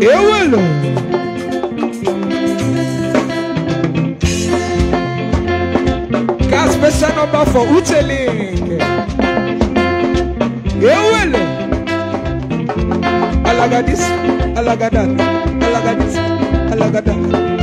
ewúlò. Got special number for Uteling. Ewúlò. Alagadis, alagadan, alagadis, alagadan.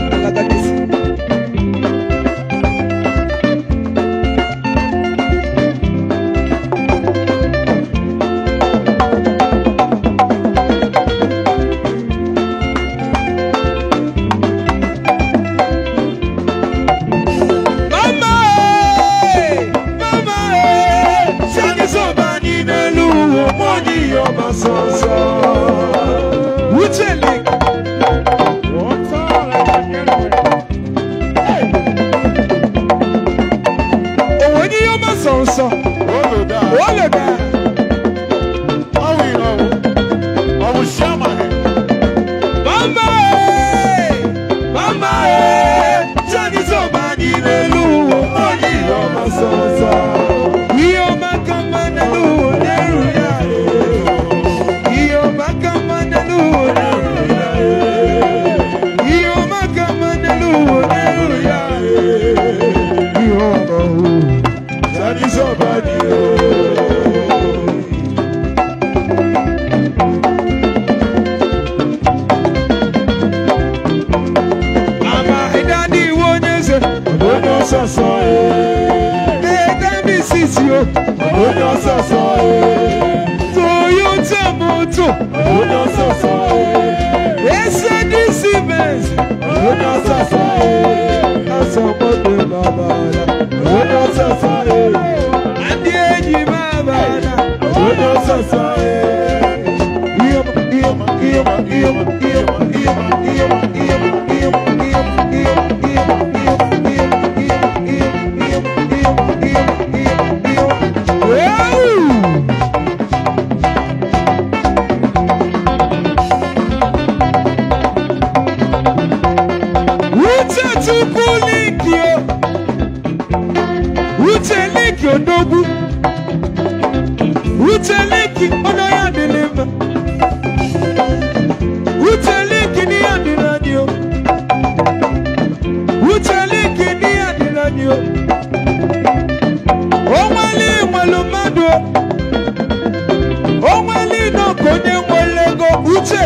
uche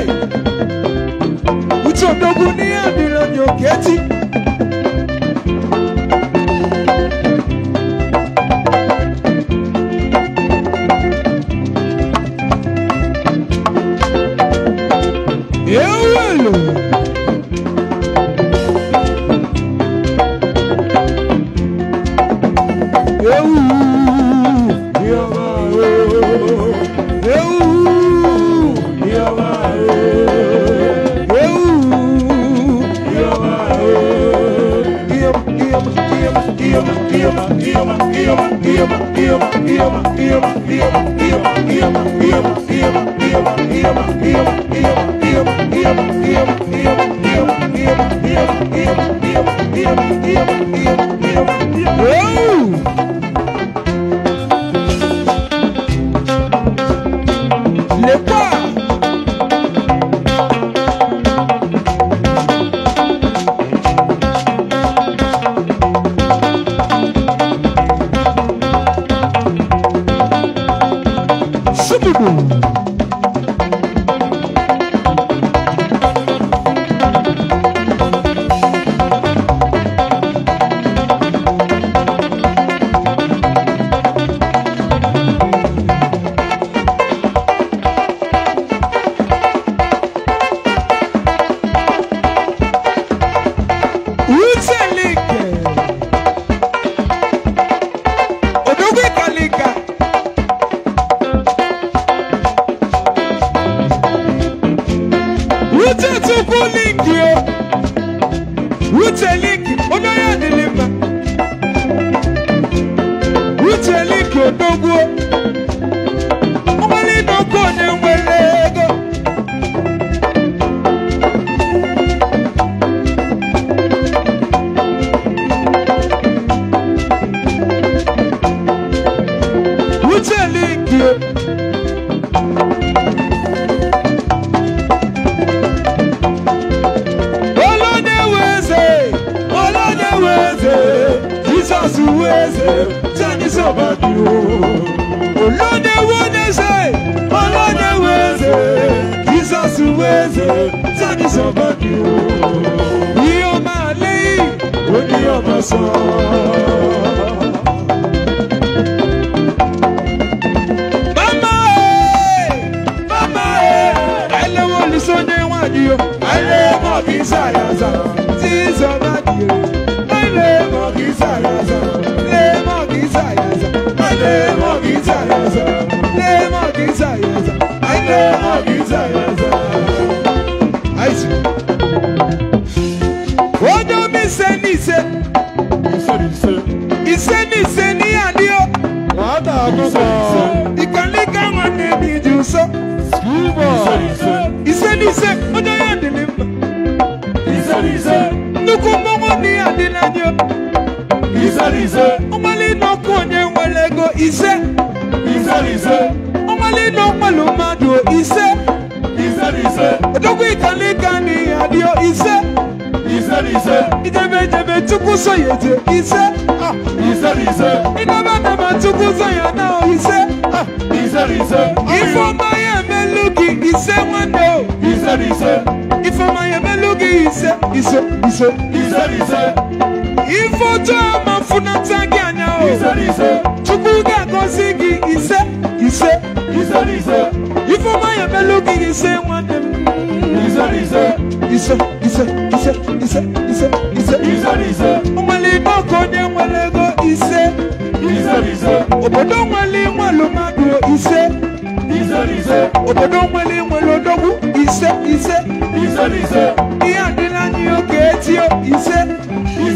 uche odogwu n'ihe ọdịrị onye oketi Iselize. Omali no konye welego ise. Iselize. Omali no malumado ise. Iselize. Odogu ikani kani adio ise. Iselize. Idebe jebe tuku ise. Ah. Iselize. Idebe jebe tuku soyana ise. Ah. Iselize. Ifoma ye meluki ise wande. Iselize. Ifoma ye meluki ise ise ise. Iselize ifotu amafuna tagi anya o chukwu ga-agọzi gị ise ise ifeọma ya emelụ gị ise nwanne m ise ise ise ise ise ise ọmalite ọka onye nwere ego ise obodo nwere nwelu mmadụ ise obodo nwere nwere odogwu ise ise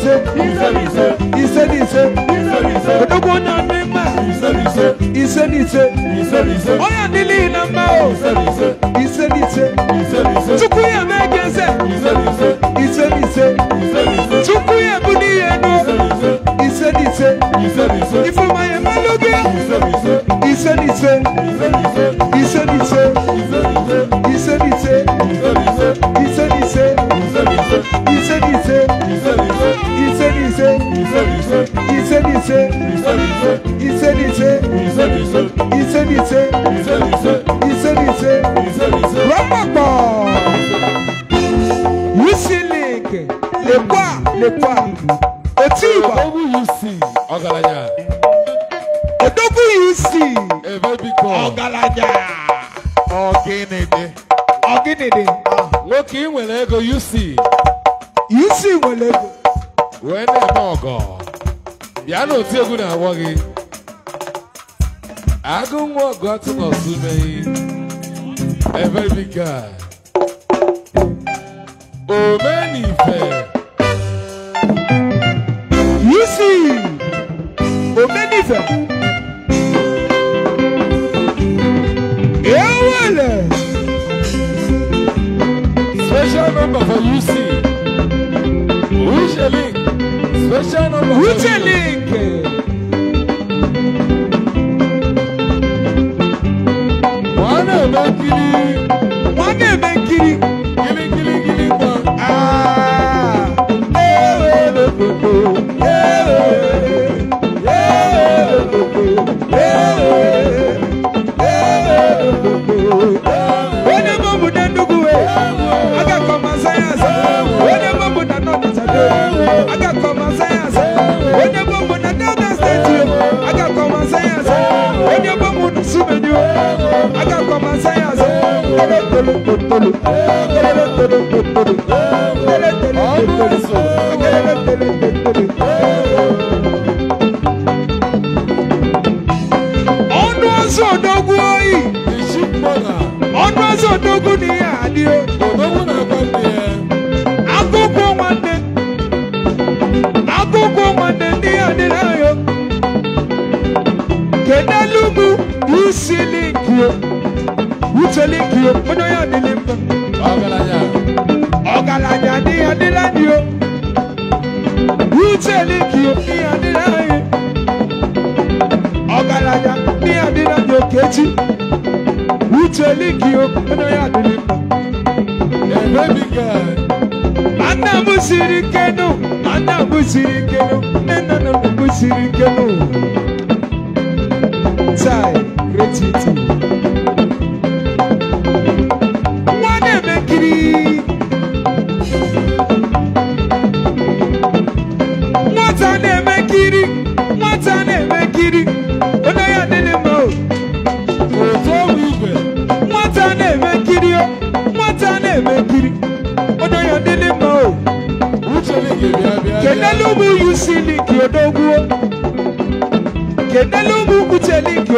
ise ise ise ise ise ise odogwu onye ọdị mma ise ise ise ise ise ise onye adịlị na mma o ise ise ise ise ise tupu ya mee gị eze ise ise ise ise ya ebu n'ihe n'o ise ise ise time.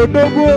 dogo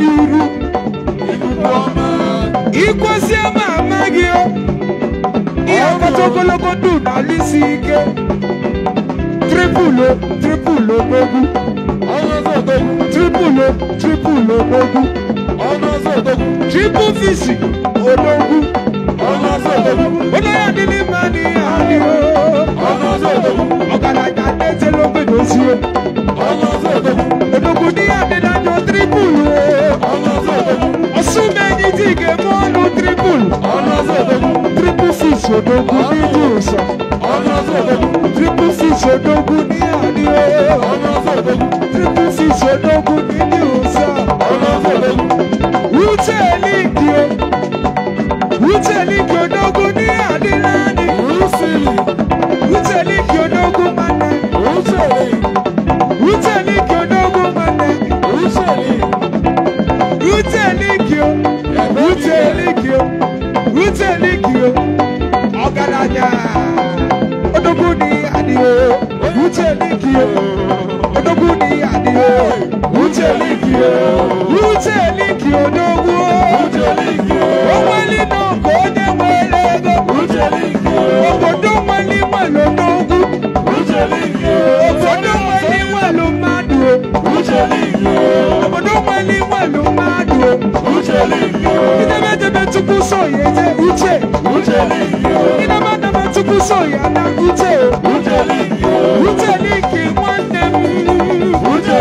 dị uru ikwesie ma amaghị ihe kacha ogologo ndụ n'ala isi ike tripulo tripụlụ ogbogu tripulo, tripulo ogbogu tripụl fisi odogwu onye ya dị n'ime anyị adịghị ọgaranya na-etela ogbenye ozie odogwu dị ya dị na tribul Osunmeni dige monu tribul Tribul six odogun méjì ọ̀sán Tribul six odogun ní àdíwẹ́ Tribul six odogun nílé ọ̀sán Wúchẹ́ lígi o Wúchẹ́ lígi odogun. Yeah. tukuso ya na ute ute liki nwanne m onye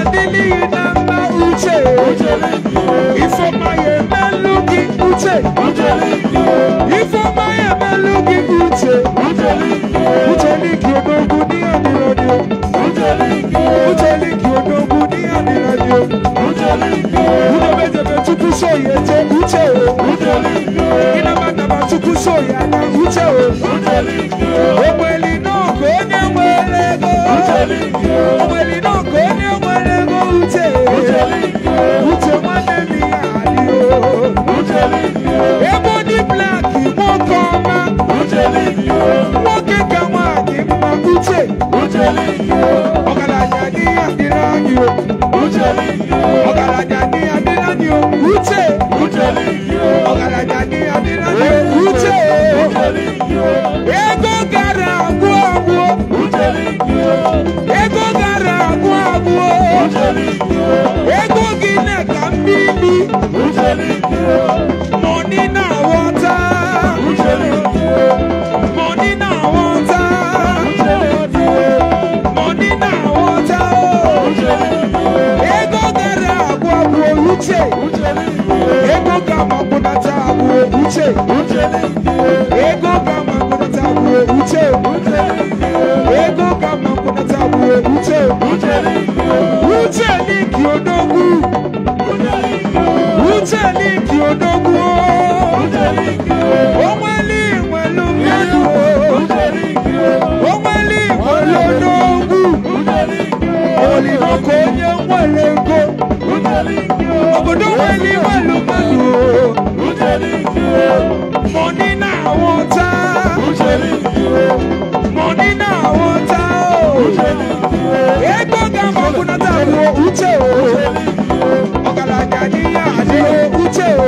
adịlịghị na mma uche ifeoma ya emelụ gị uche ifeoma ya emelụ gị uche uche liki odogwu n'ihe dịrọdịo uche liki odogwu n'ihe dịrọdịo udebedebe tukuso ya eje uche chukwu so ya na uche o ogbeli n'oge onye nwere ego ogbeli n'oge onye nwere ego uche uche nwanne nne ya adịghị ebe ndị blak nwoke ọma nwoke ka nwaanyị mma uche ọgaranya dị ya dịrị anyị o ọgaranya dị ya dịrị anyị o uche ọgaranya dị ya dịrị anyị o ego gara agwụ agwụ ego gara agwụ ego gị na ka na aghọta mọni na aghọta mọni na aghọta ego gara ego ga-amakwụnata uche ego kama mma tabu. bụ uche ego kama mma tabu. Uche, uche uche n'iki odogwu uche n'iki odogwu onweli nwelu mmadụ onweli nwelu odogwu olidoko onye nwere ego Obodo wẹ̀lì mọ̀lúmọ̀lù o. Mo ní náà wọ́n tá. Mo ní náà wọ́n tá o. Egbò gàmọ̀ kùnà tá a lo ute o. Ọ̀gàlàjà ní àdé o ute o.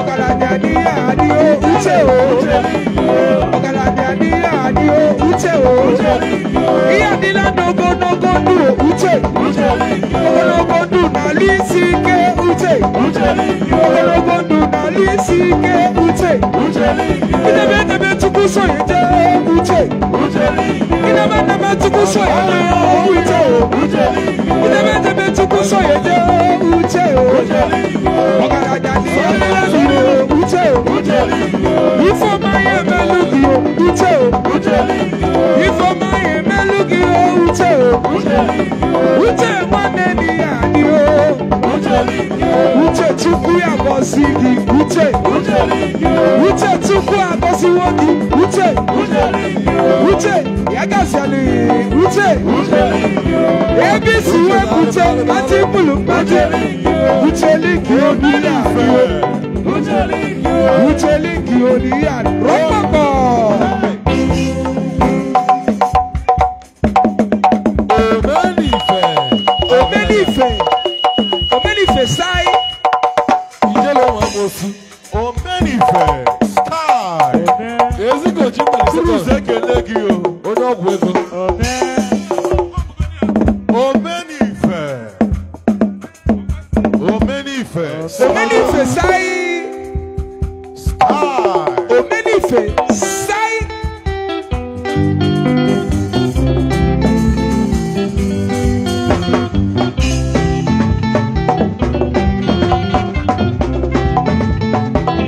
Ọ̀gàlàjà ní àdé o ute o. Ọ̀gàlàjà ní àdé o ute o ihe adịla n'ogologo ndụ uche ogologo ndụ n'ala isi ike uche ogologo ndụ n'ala isi uche idebe edebe chukwu soye jee uche idebe edebe chukwu soye jee uche idebe edebe chukwu soye jee uche ọgaranya n'elu uche ifeọma ya emelu gị uche ifeọma ya emelu lugi o uche o uche nwanne di ya ni o uche chukwu ya gọzi gị uche uche chukwu agọziwo gị uche uche ya gaziala uche ebe Uche, wepụta mkpata ikpulu mkpata ucheliki oniya uche liki oniya rọ Omenife sai.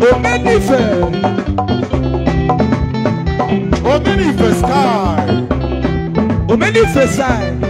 Omenife. Omenife sky. Omenife sai.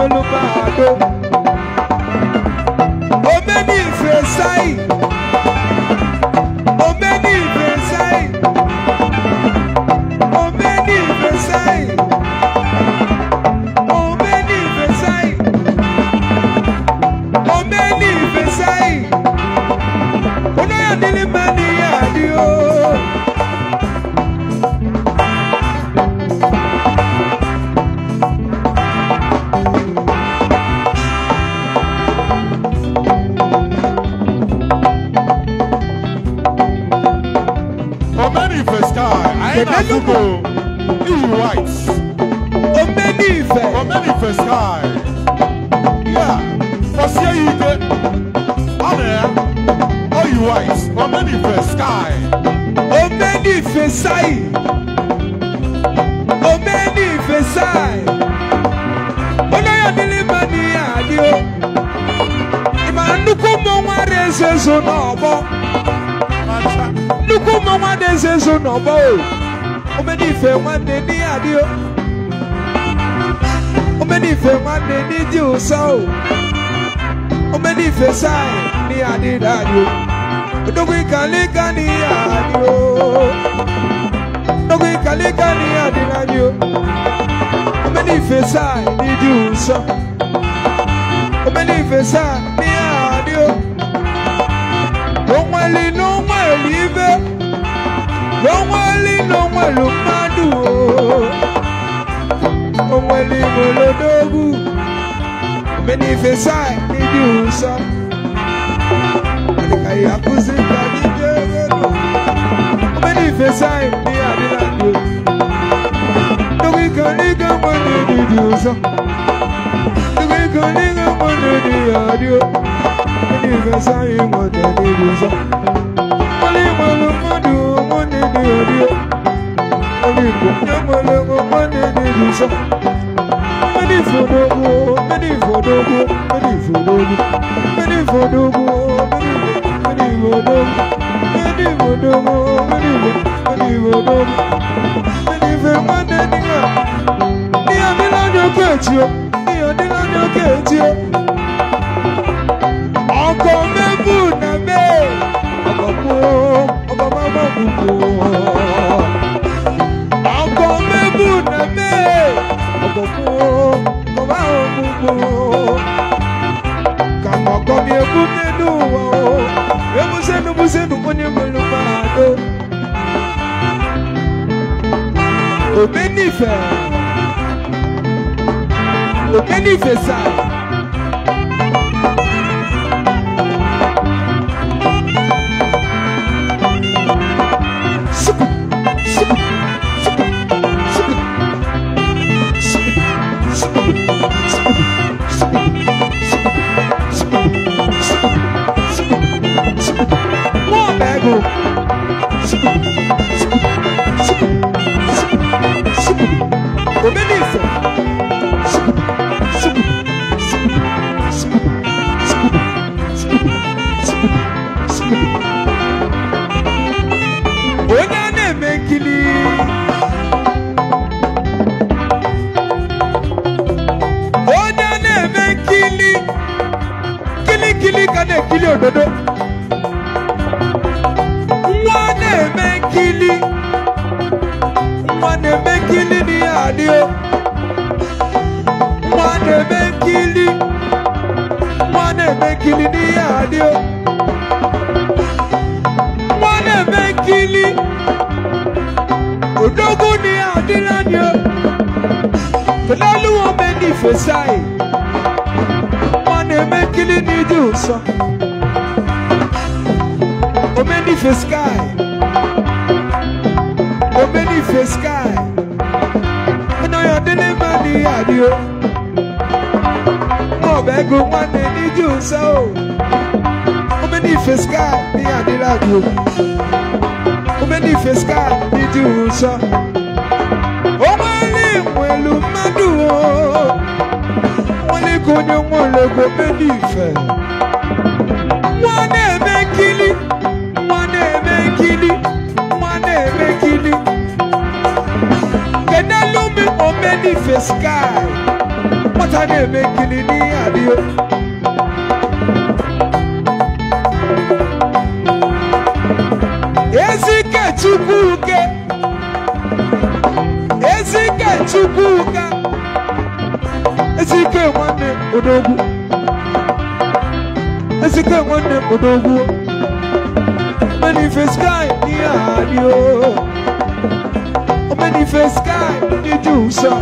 agbólúbàdó. Omeni ìfẹsáì. Omeni ìfẹsáì. Omeni ìfẹsáì. Omeni ìfẹsáì. Omeni ìfẹsáì. Olóyè nílé máa ní àdí white, New Whites, Omenife, Omenife Sky. Yeah, Fosia Ige, Ane, All you Whites, Omenife Sky. sky, Omenife Sai, Omenife Sai. Onaya Milimani Adio, Imanuko Mwa Rezezo Nobo. Nuko Mwa Rezezo Nobo omeni ife nwanne n'ihe adị o omeni ife nwanne n'ịdị ụsọ o omeni ife saị n'ihe adị n'adị o odogwu ịkalịka n'ihe adị o odogwu ịkalịka n'ihe adị n'adị o omeni ife saị n'ịdị ụsọ omeni ife saị n'ihe adị o onweli n'ụmụ elive n'onweli n'onwelu mmadụ o onweli molodogwu menifesai n'ịdị ụsọ ka ya akụzi ka dịdị egoro menifesai ndị adịla ndụ ndụgị ka ndị ga-enwe n'ịdị ụsọ ndụgị ka ndị ga-enwe n'ịdị ya dị o menifesai nwere n'ịdị ụsọ onweli molodogwu dede ori ori ìgbòkè mọlẹmọ mọ dede ìdùsọ mẹni ìfọdọgbọ mẹni ìfọdọgbọ mẹni ìfọdọgbọ mẹni ìfọdọgbọ mẹni ìfọdọgbọ mẹni ìfọdọgbọ mẹni ìfọdọgbọ mẹni ìfẹmọ dẹnigbà ní ọdún lọ́jọ́ kẹjì o ní ọdún lọ́jọ́ kẹjì o. Obenife Obenife sa Facebook. scar ni adịragị omenife scar dị dị ụsọ ụgbọelu nwelu mmadụ nwanne ka onye nwaologbo omenife nwa na-eme nkili nwa na-eme nkili nwa na-eme nkili kenelumi omenife scar nwata na-eme nkili n'ihe adịghị chukwuka ezike nwanne odogwu ezike nwanne odogwu manifest sky n'ihe ahadị o manifest sky ndị dị ụsọ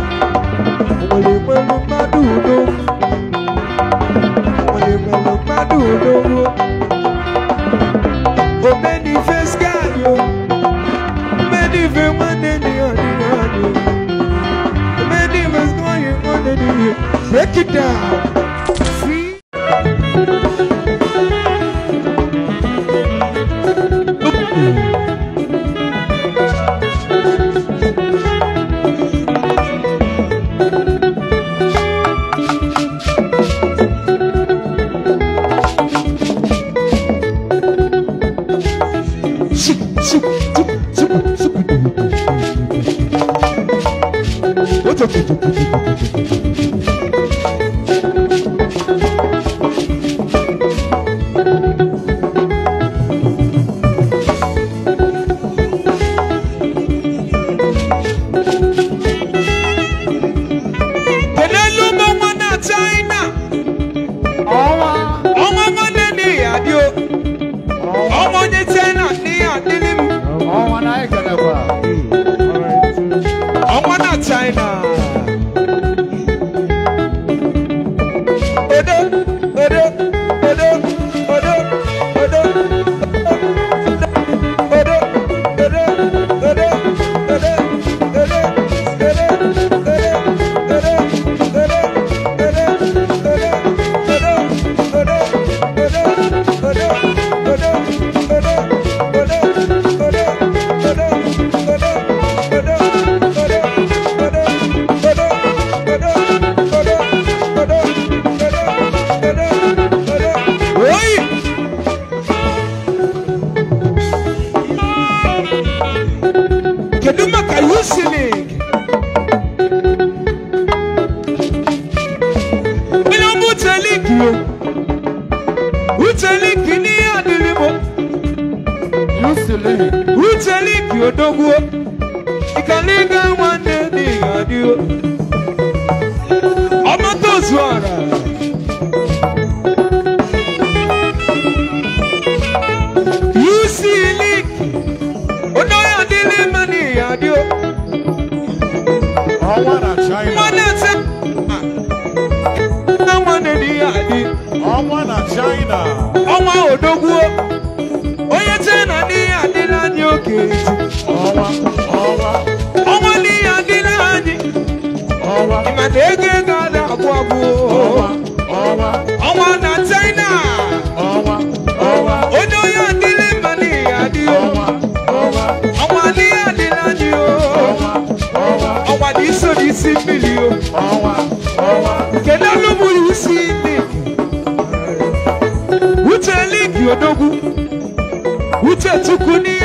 ọwa ọwa kedu olu bụrụ isi ligi uche ligi odogwu uche chukwu n'ihi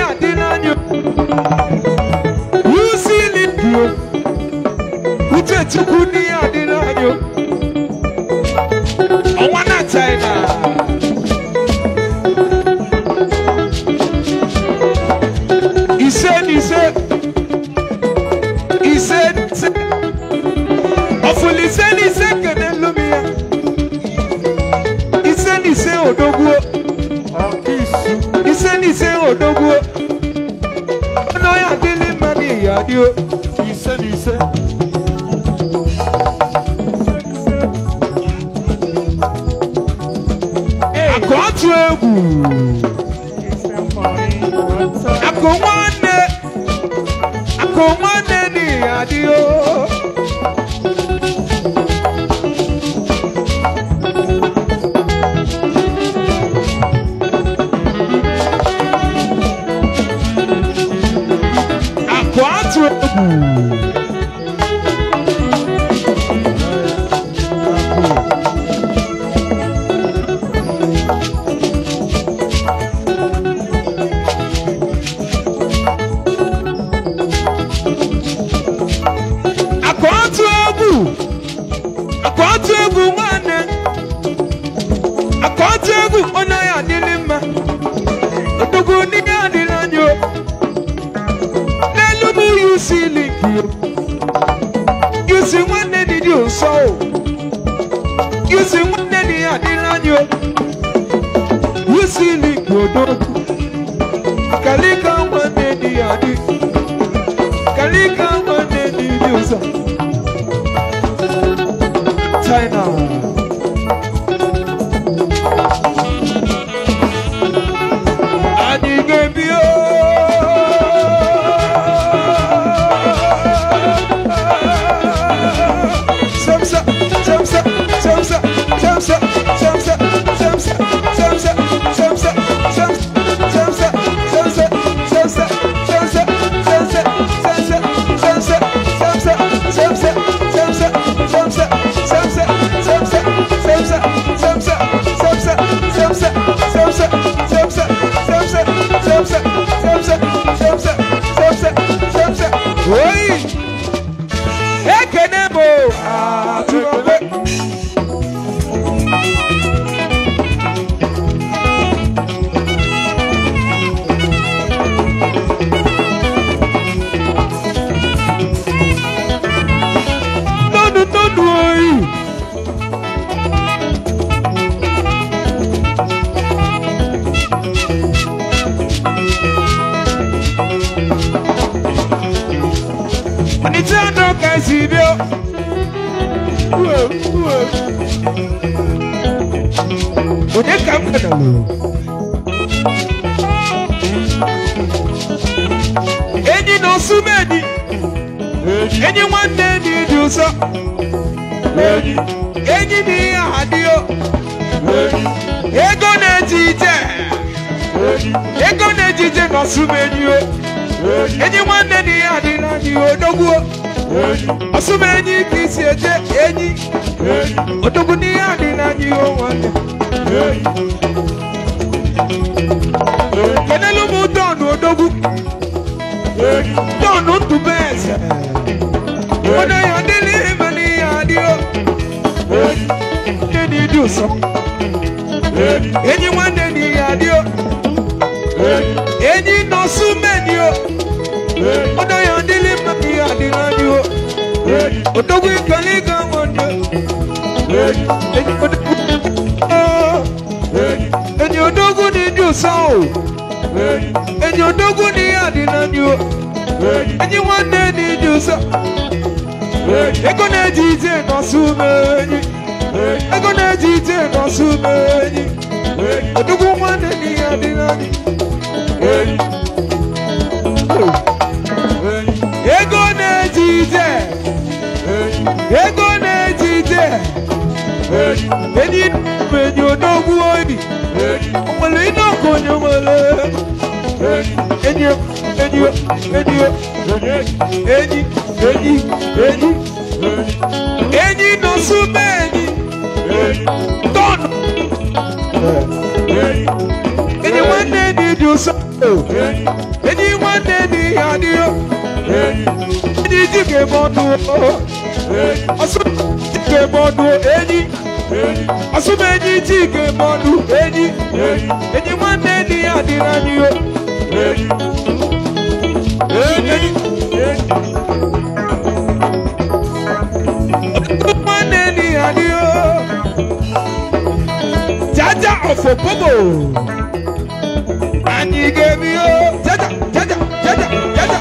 asụmụ ike mọdụ enyi asụmụ enyi ji ike mọdụ enyi enyi nwanne di ya dị n'anyị o nwanne di ya dị o jaja ọfọ popo anyị ga-ebi jaja jaja jaja jaja.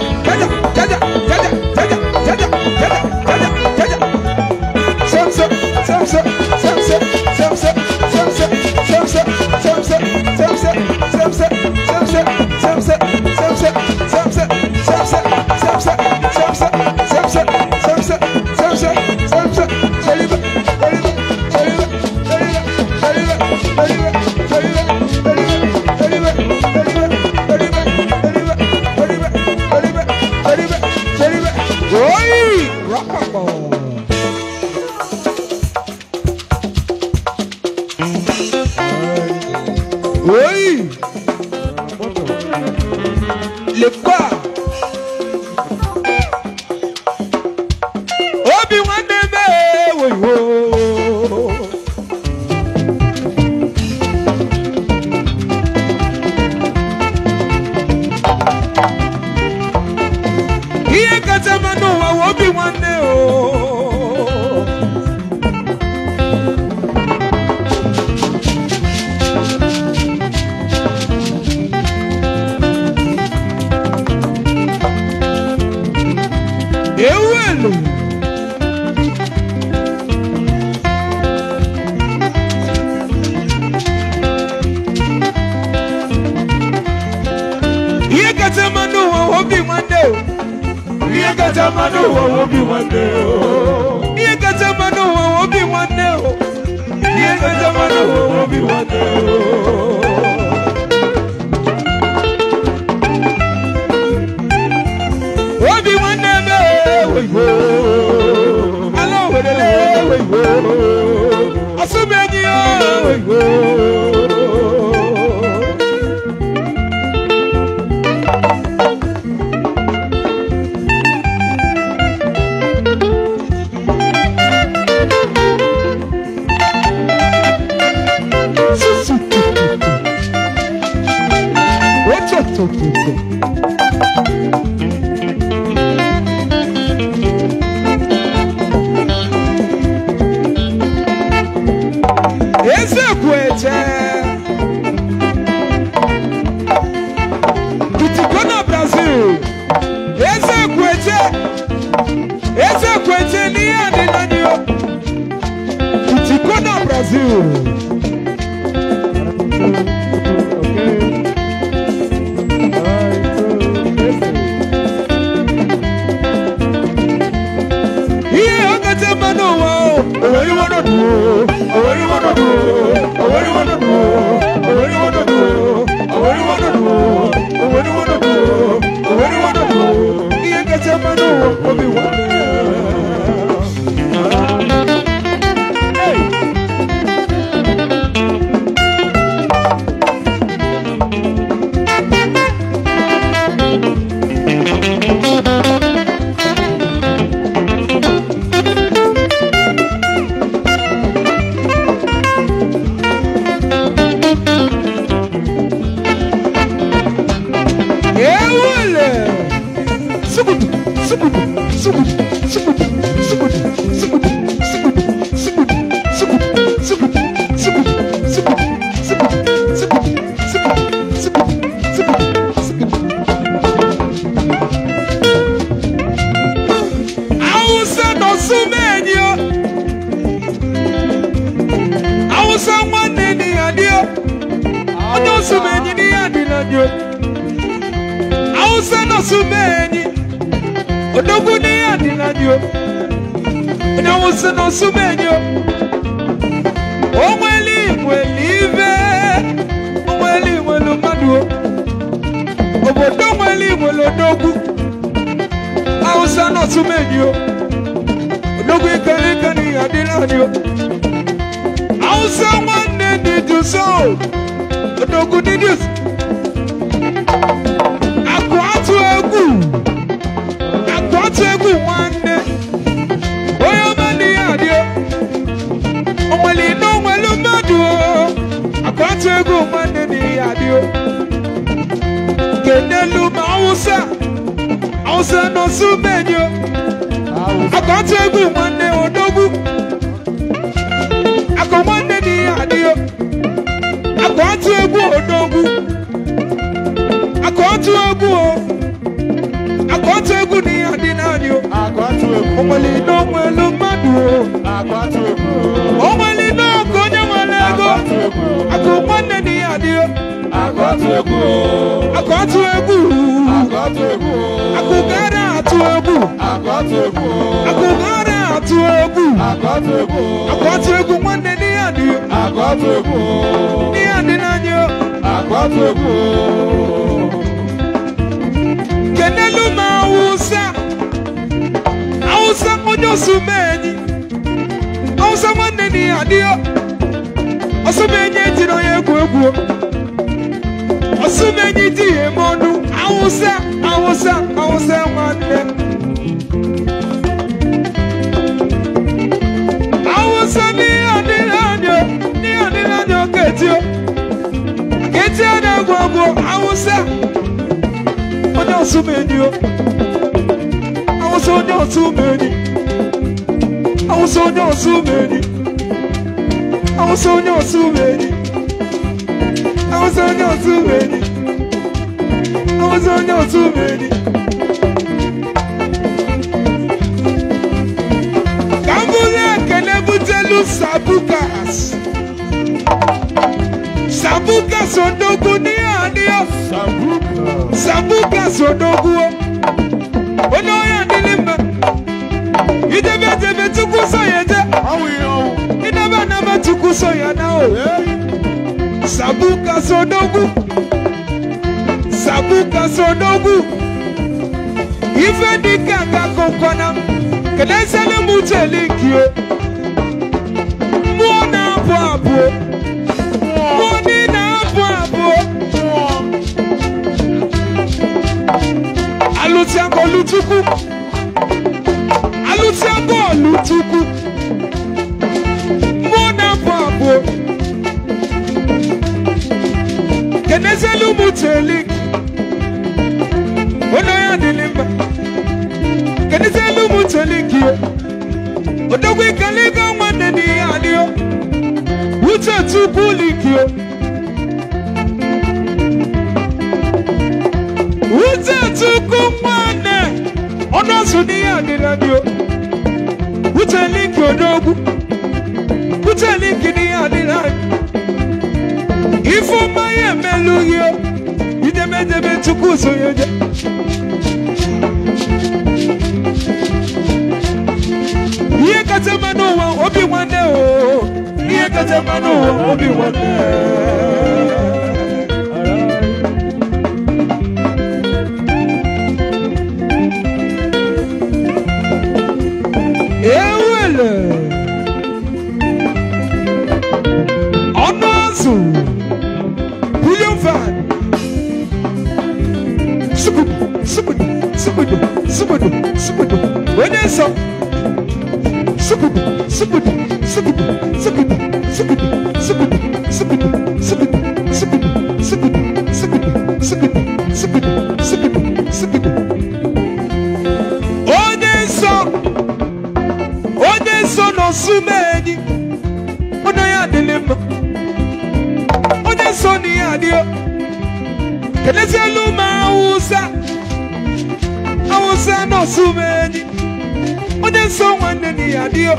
ezekwu eje bitigo na brazil ezekwu eje ezekwu eje n'ihe adịla n'ihe bitigo na brazil Oh, Obi-Wan lino mwelu madu Akwatubu O mwelino konye mwelego Akumwane ni adio Akwatubu Akwatubu Akwatubu Akugara atubu Akwatubu Akugara atubu Akwatubu Akwatubu mwane ni adio Akwatubu Ni adi nanyo Akwatubu Keneluma awụsa onye osumenyi awụsa nwanne na ihe adịghị osumenyi etiri onye egwu egwu osumenyi tighị eme ọnụ awụsa awụsa awụsa nwanne awụsa n'ihe adịghị anya n'ihe adịghị anya oke etio na-egwu onye o was on your too many. I was on your too many. I was on your too many. I was on your too many. I was on your too many. Kambule kenebutelu sabukas. Sabukas odogun ni adio. Sabukas odogun. so yanao sabuka eh? so sabuka so dogu ife dika ka kokona kedesele muteli kio eh? mwana abu abu mwani na abu abu aluti ako lutuku aluti ako Nezelu muteli Onoya nilimba Kenizelu muteli kiyo Odogwe kalega mwane ni aliyo Ucha tukuli kiyo Ucha tukumwane Ono sunia nilanyo Ucha linki odogu Ucha linki ni alilanyo ifeọma ya emelụghị idemedeme Chukwu sonye je Iye kacha mma n'ụwa obi nwanne o Iye kacha mma n'ụwa obi nwanne subudu subudu onye nsọ subudu subudu subudu Adio.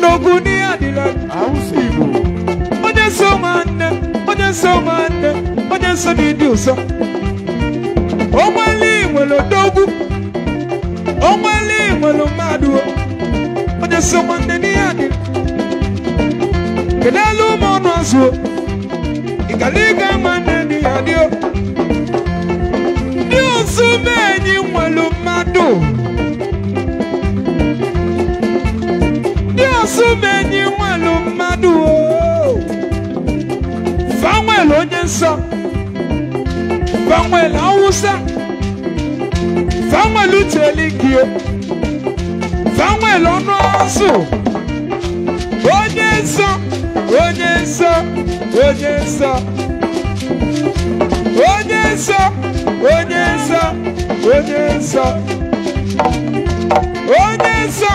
Noguni Adilak. Awusi Igbo. Onye so manne, onye so manne, onye so n'ịdị ụsọ. Ọnwale nwere odogwu. Ọnwale nwere mmadụ. Onye so manne n'ihe adị. Kedu elu ụmụ ọnụ azụ? Ịkaliga manne n'ihe adị. Ndị ụsụ ni enyi madu. mmadụ. umenyi nwelu mmadụ fanwel onye nsọ fanwel awụsa fanwel ucheligio fanwel ọnụ ọzụ onye nsọ onye nsọ onye nsọ onye nsọ onye nsọ onye nsọ onye nsọ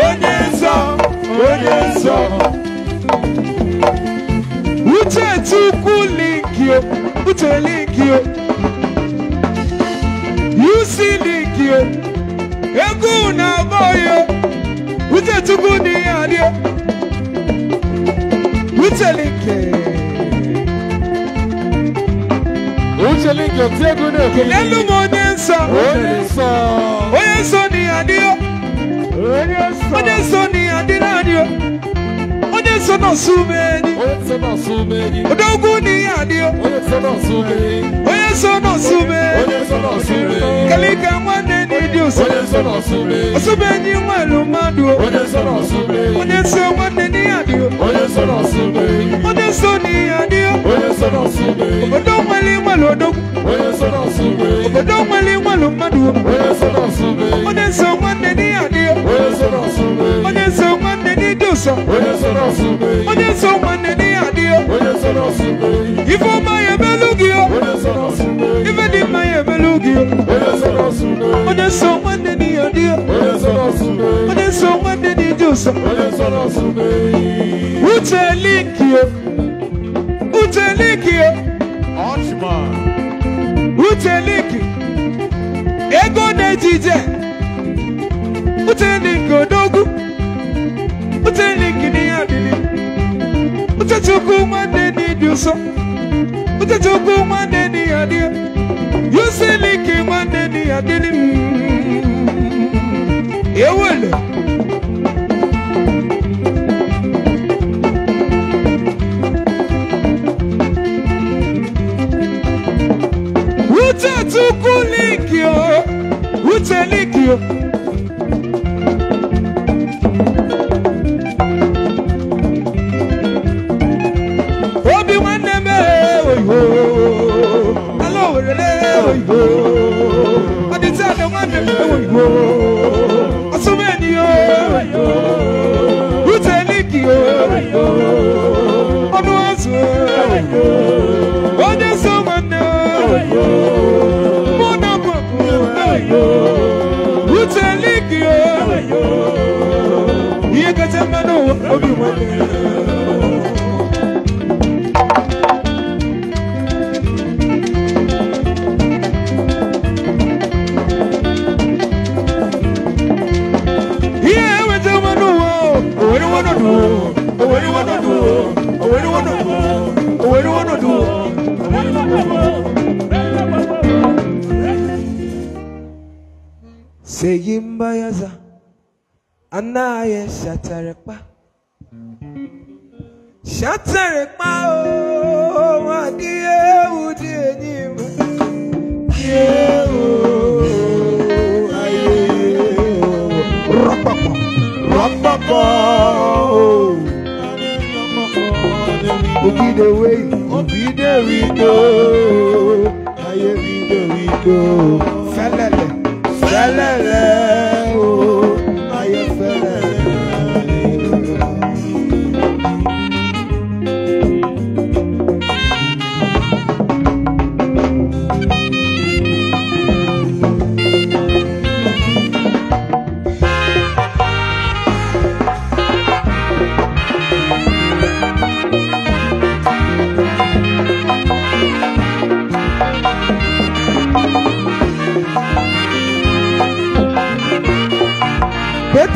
onye nsọ onye nsọ uche chukwu linkio uche linkio yusi linkio egwu na-agba oyo uche chukwu dị ya rie uche linkio uche linkio tie egwu na-ekele n'elu m onye nsọ onye nsọ onye nsọ dị ya rie onye nsọ dị ni o onye so nọọsụ umeri onye ugwu ni ya ni o onye so nọọsụ umeri kalika nwanne n'ịdị osomeri osomenyi nwelu mmadụ o onye so nwanne ni ya ni o onye so ni ya ni o obodo nwere nwere odogwu obodo nwere nwere mmadụ o onye so nwanne ni ya ni o Yesu. Onye so n'ọsụ mbe Onye so nwanne n'ihe adị ya. Onye so n'ọsụ mbe Ife ọma ya emelu gị ya. Onye so n'ọsụ mbe Ife dị mma ya emelu gị ya. Onye so n'ọsụ mbe Onye so nwanne n'ihe adị ya. Onye so n'ọsụ mbe yi. Onye so nwanne n'ije ụsa. Onye so n'ọsụ mbe Uche liki ya. Uche liki ya. Ọchịma. Uche liki. Ego na ejije. Uche liki odogwu uteni kini adili utachukua madeni duso utachukua madeni adia yusiliki madeni adili yewele utachukua likio utelikio be wan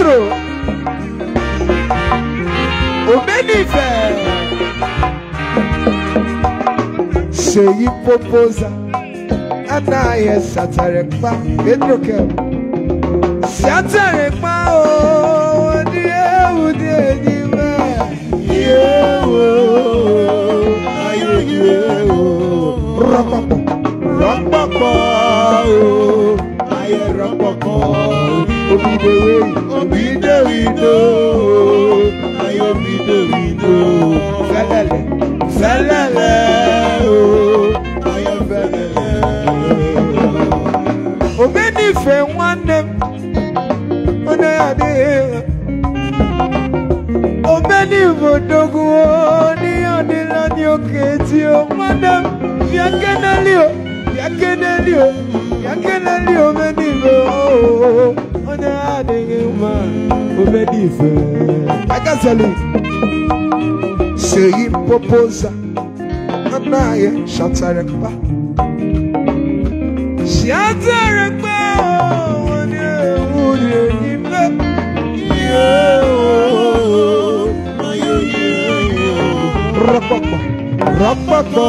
Pedro Omenife Seyi Popoza Anaye Satarekpa Pedro Kem Satarekpa o di ewu di enyime yewo aye yewo rọpọpọ rọpọpọ o aye rọpọpọ. Obidewe. Obidewido. Ayi obidewido. Fẹ́lẹ́lẹ̀. Fẹ́lẹ́lẹ̀ o. Ayi fẹ́lẹ́lẹ̀. Omenife nwanne m. Onye adịghị. Omenife dogo n'ihe ọdịla dị oke ti o. Nwanne m bịa keneli o. Bịa keneli o. Bịa keneli omenife o. ne adịghị mma obe dị ife akazali seyi popoza nna anyị shatara mkpa shatara mkpa onye nwunye n'ime rapapa rapapa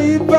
baby.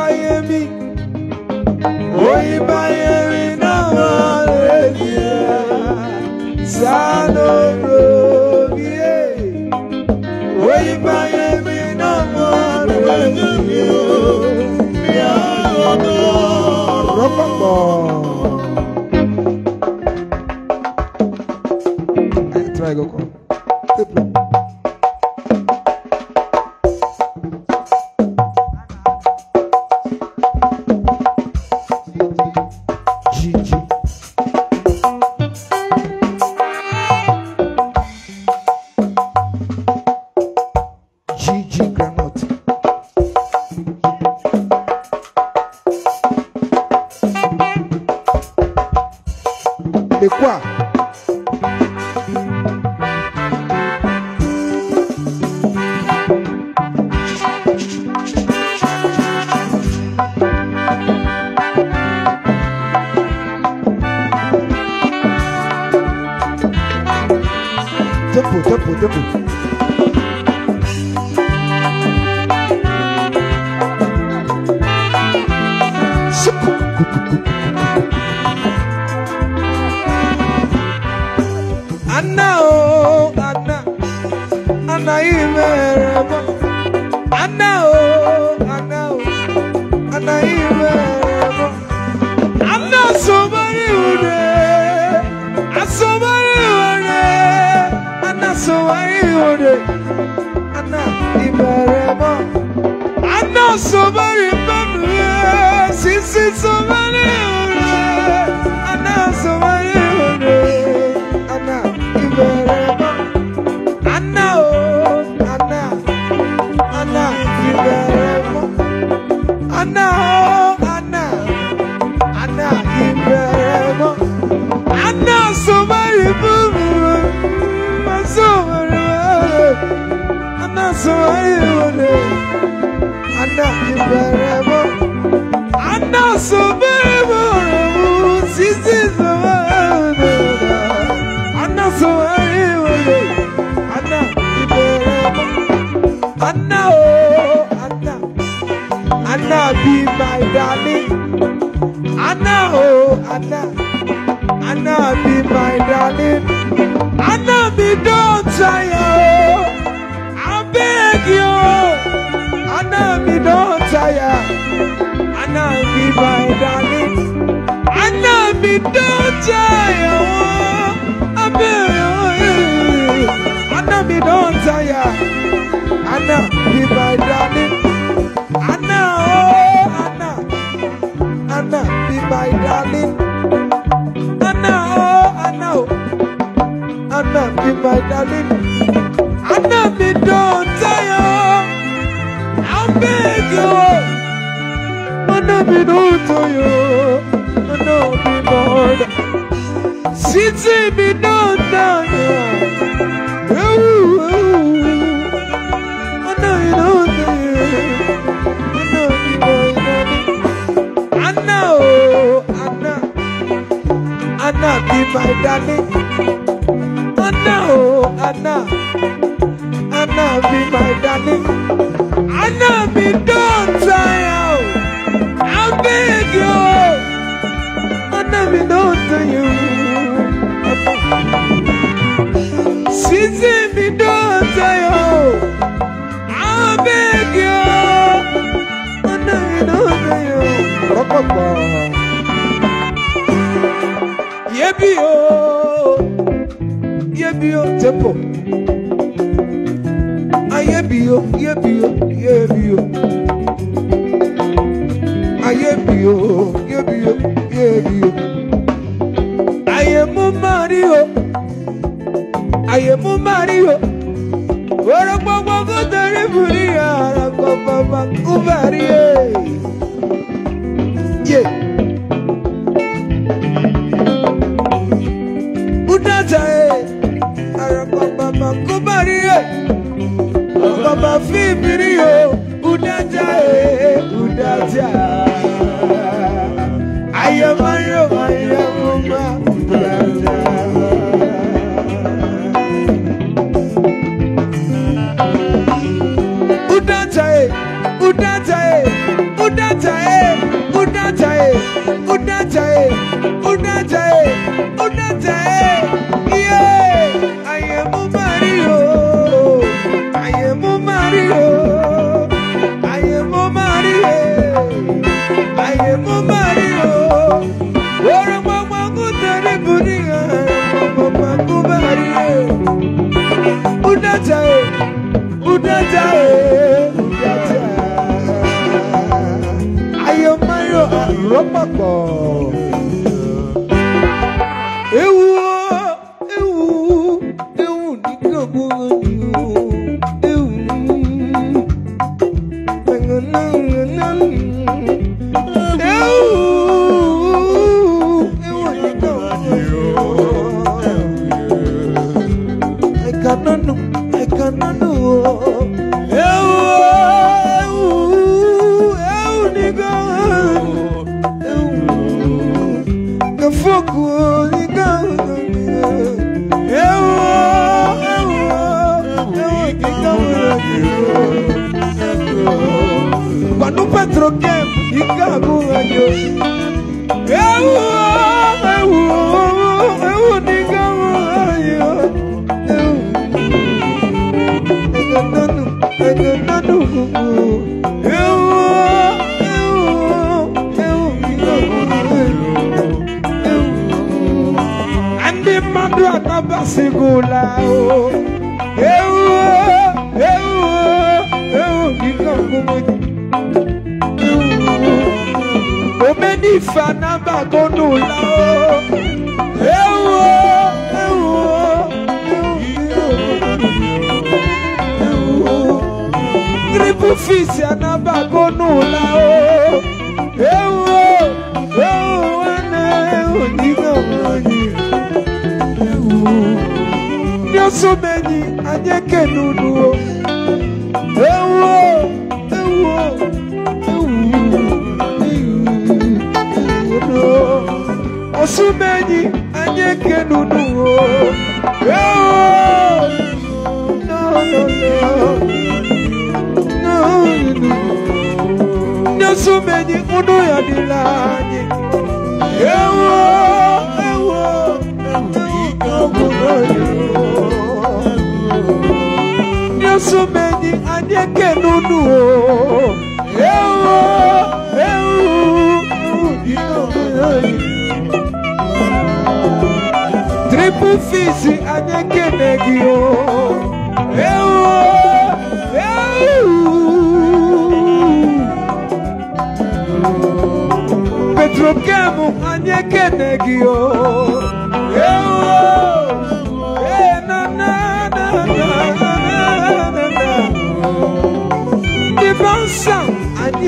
don't tire. I feel I know me don't tire. be my darling. I know, be my darling. I know, I know, I know be my darling. I know me don't tire. I'll beg you. I know me don't tire me, Lord. Sitting me down, down, down. Ooh, ooh. I know you know me. I know you know me. I know, I know. I know be my darling. I know, I know. be my darling. I be done time. ọ̀pọ̀. Yébí o, yébí o, tepo. Ayébí o, yébí o, yébí o. Ayébí o, yébí o, yébí o. Ayé mú mari o, ayé mú mari o. Orúkọ gbogbo tẹ̀lé fún ní àrà pàpàpà kú bàrí udaja e udaja e udaja ayo mayo aropapọ.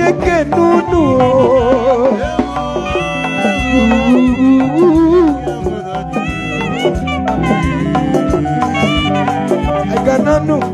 yeke nunu Egananu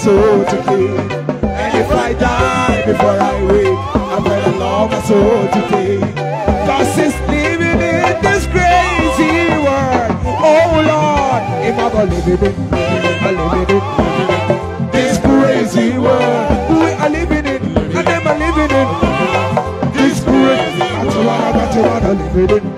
soul to kill. And if I die before I wake, I'm gonna love my soul to kill. Cause it's living in this crazy world. Oh Lord, if i believe in it, I'm living it. This crazy world, we are living it, and them are living it. This crazy world, I'm living it.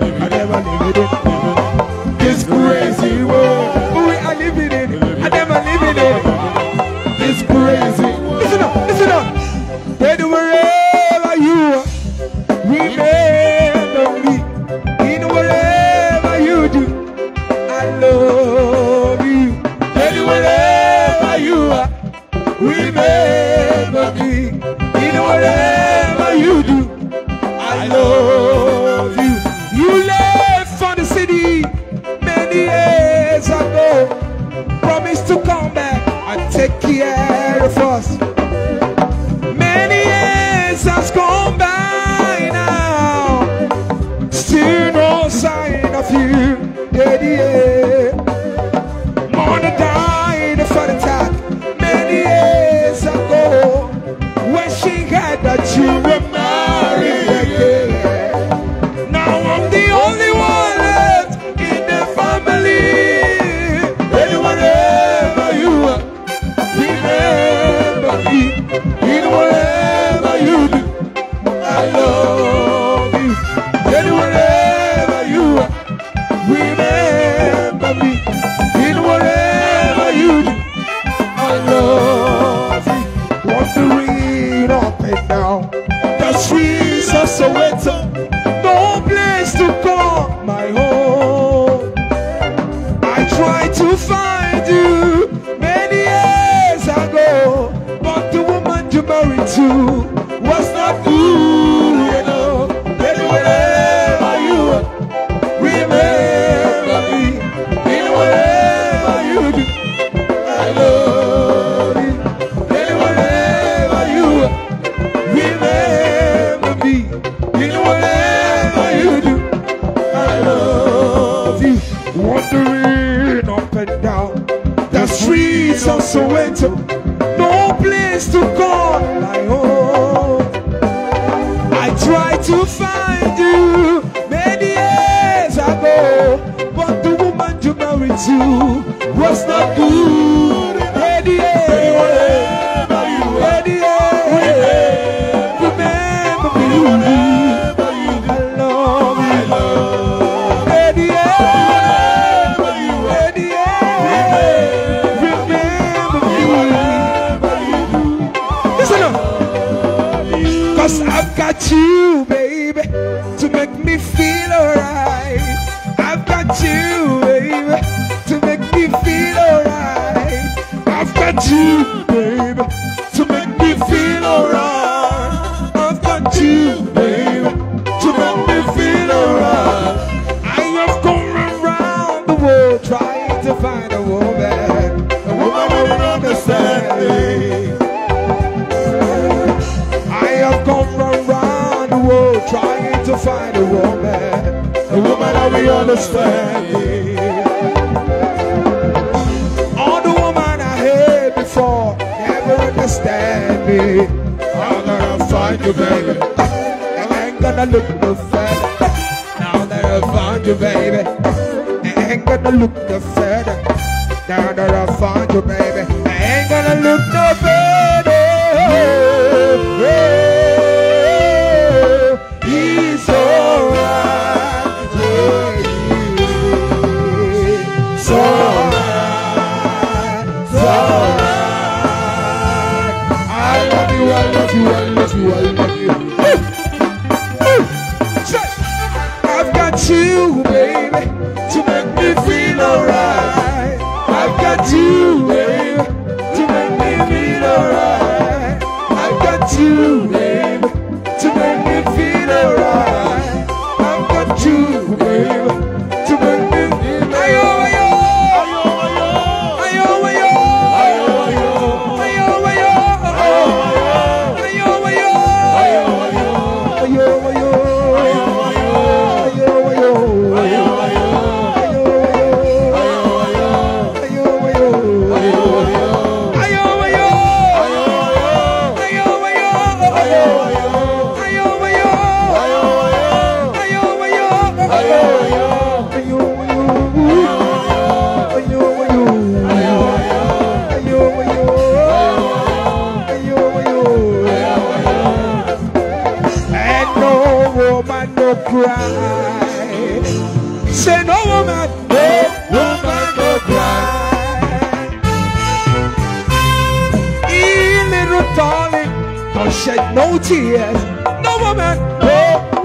shed no tears. No woman, no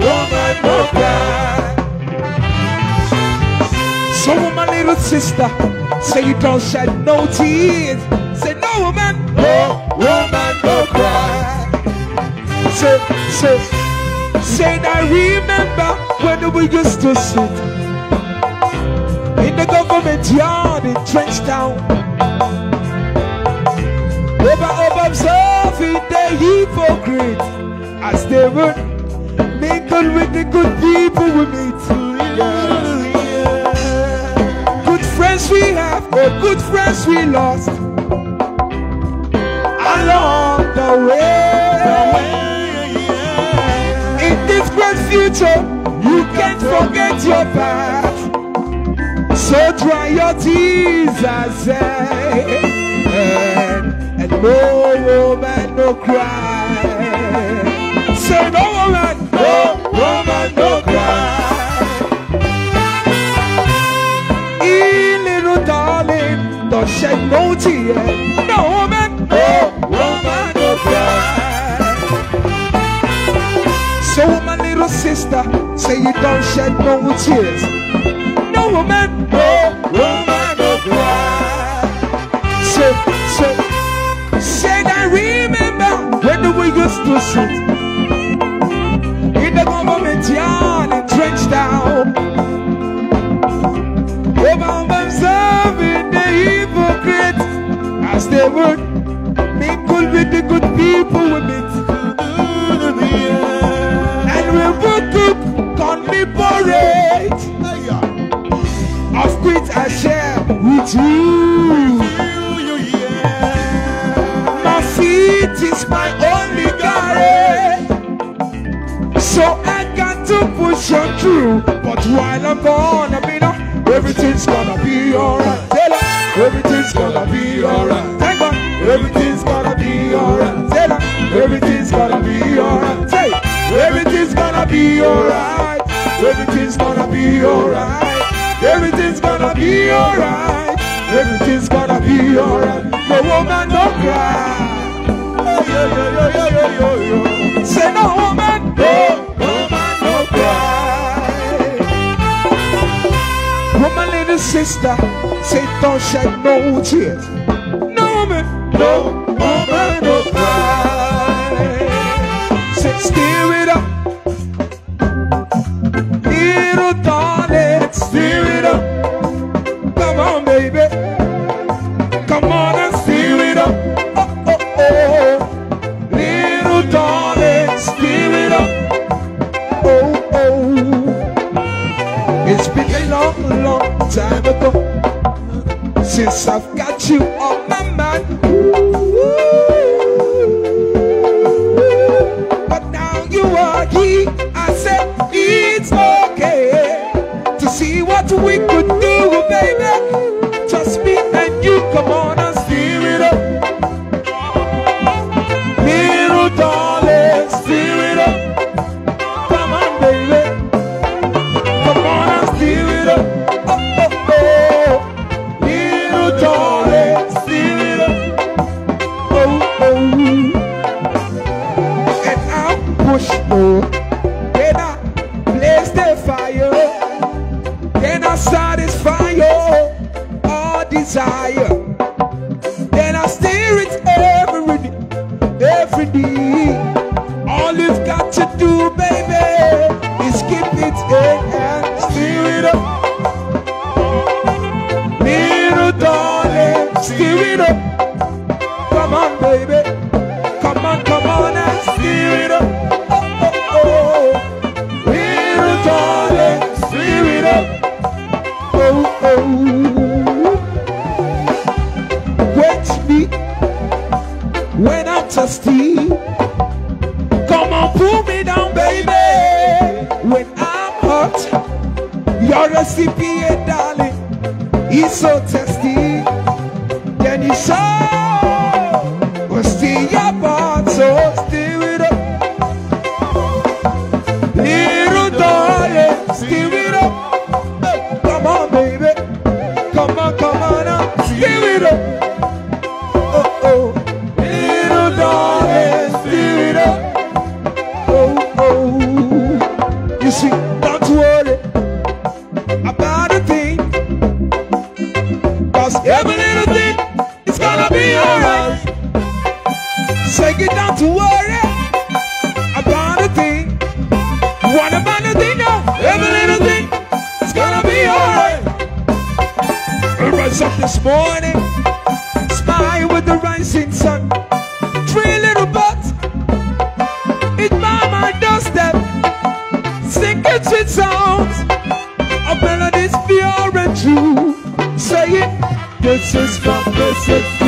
woman, no cry. So, my little sister, say you don't shed no tears. Say, no woman, no woman, no cry. Say, say, say, I remember when we used to sit in the government yard in Trenchtown. feed the hypocrite as they would mingle with the good people we meet. Good friends we have, but good friends we lost along the way. In this great future, you can't forget your past. So dry your tears, I say. No woman, no cry. Say no woman, no woman, no cry. E little darling, don't shed no tear. No woman, no woman, no cry. So my little sister, say you don't shed no tears. No woman, no woman. the biggest person in the government yard and trench down. Over themselves the hypocrites as they would mingle with the good people with it. And we would keep conniborate. Of quit I share with you. My feet is my own. true. But while I'm gone, I mean, uh, everything's gonna be alright. Tell everything's gonna be alright. Thank God, everything's gonna be alright. Tell her, everything's gonna be alright. Say, everything's gonna be alright. Everything's gonna be alright. Everything's gonna be alright. Everything's gonna be alright. No woman, no cry. Hey, yo, yo, yo, yo, yo, yo. Say no woman. sister, Satan shed no tears. No woman, no woman no cry. Say, steer it up, little dog. I've got you. rise up this morning, smile with the rising sun. Three little bugs in my doorstep, singing sweet songs of melodies pure and true, saying, This is God, the is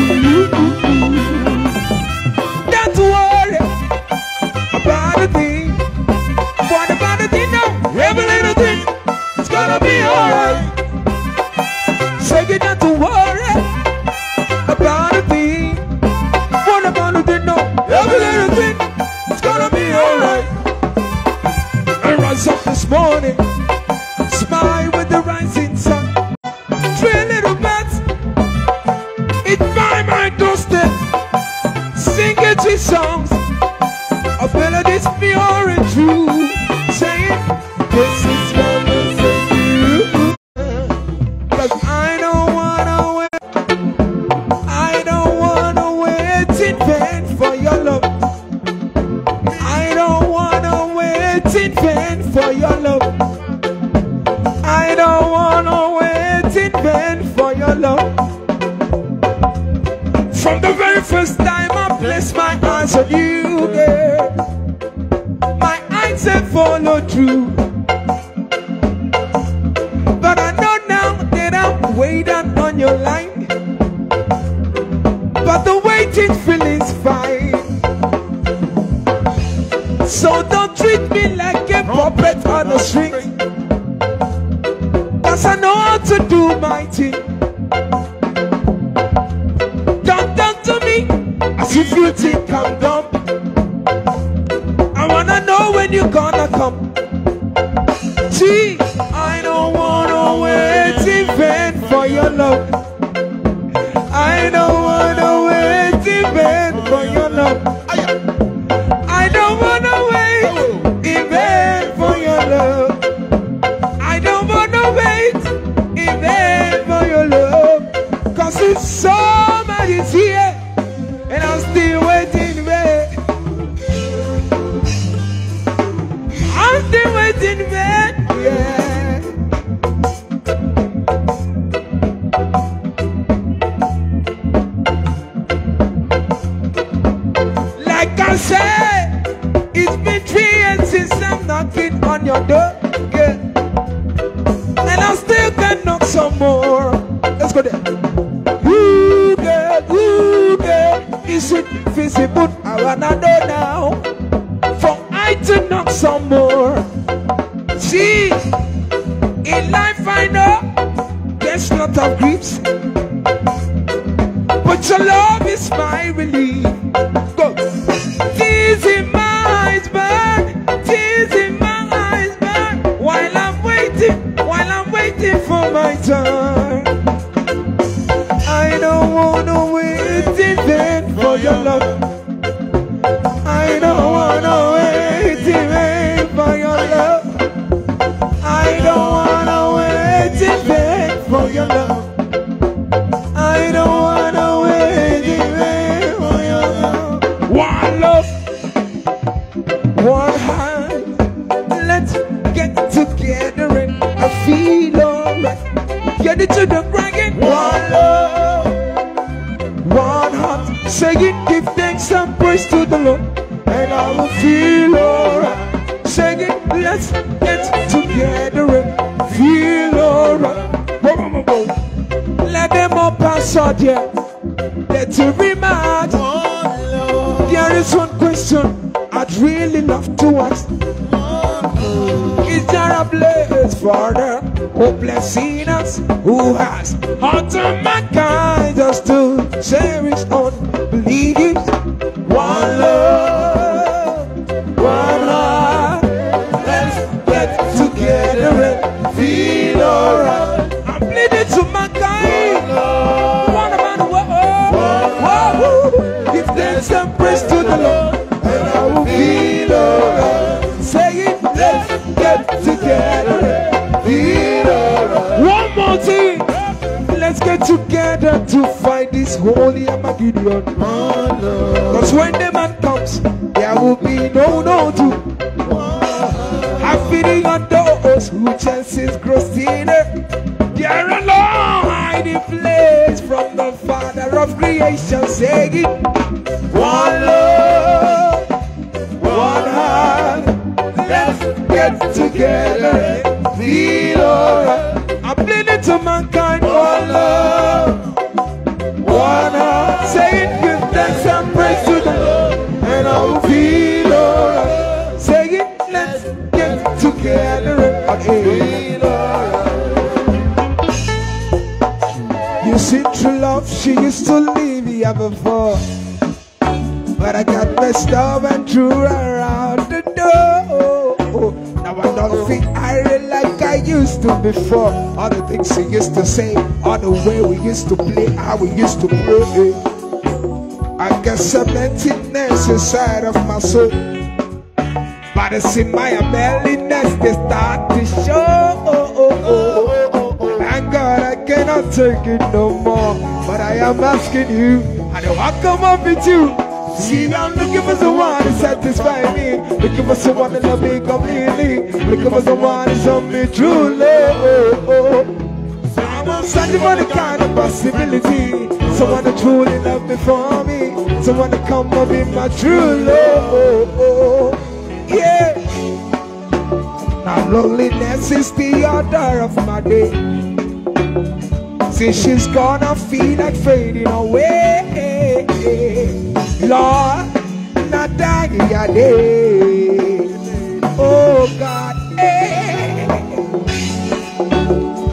Let's go there. Ooh, girl, ooh, girl, is it visible? I wanna know now. For I to knock some more. See, in life I know there's lot of griefs, but your love is my relief. You see, true love, she used to leave here before. But I got messed stuff and threw her around the door. Now I don't feel irate like I used to before. All the things she used to say, all the way we used to play, how we used to play. I got some emptiness inside of my soul. But it's in my belly that's they start to show cannot take it no more. But I am asking you, I know I come up with you. See, I'm looking for someone to satisfy me. Looking for someone to love me completely. Looking for someone to love me truly. Oh, oh. I'm searching for the kind of possibility. Someone to truly love me for me. Someone to come up be my true love. Oh, oh. Yeah. Now loneliness is the order of my day. Competition's gonna feel like fading away. Lord, not dying a day. Oh God, eh.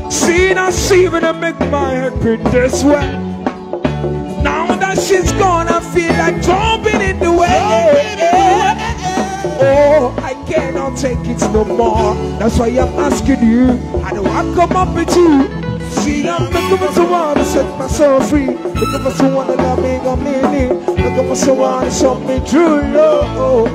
Seeing and seeing to make my head pretty way. Now that shit's gonna feel like jumping in the way. Oh, I cannot take it no more. That's why I'm asking you. I don't want to come up with you. See that? Looking for someone to set my free. Looking for someone that got me, got me, Looking for someone to show me true love.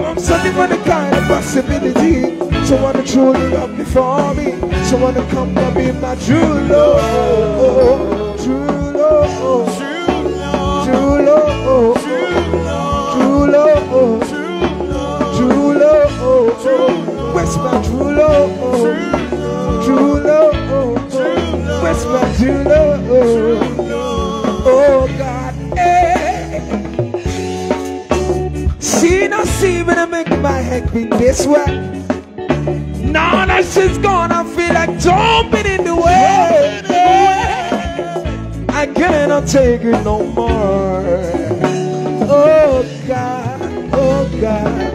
I'm searching kind of possibility. Someone to truly love me me. Someone to come and be my true love. True love. True love. True love. True love. True love. Where's my true love? It's meant to know. Oh God. She See, now see when I make my head be this way. Now that she has gone, I feel like jumping in the way. I cannot take it no more. Oh God, oh God.